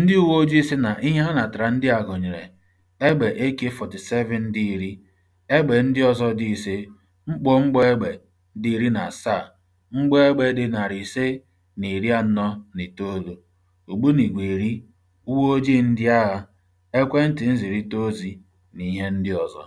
Ndị uwe ojii sị na ihe ha natara ndị a gụnyere egbe AK-47 dị iri, egbe ndị ọzọ dị ise, mkpọ mgbọ egbe dị iri na asaa, mgbọ egbe dị narị ise na iri anọ na itoolu, ogbunigwe iri, ojii ndị agha, ekwentị nzirita ozi na ihe ndị ọzọ.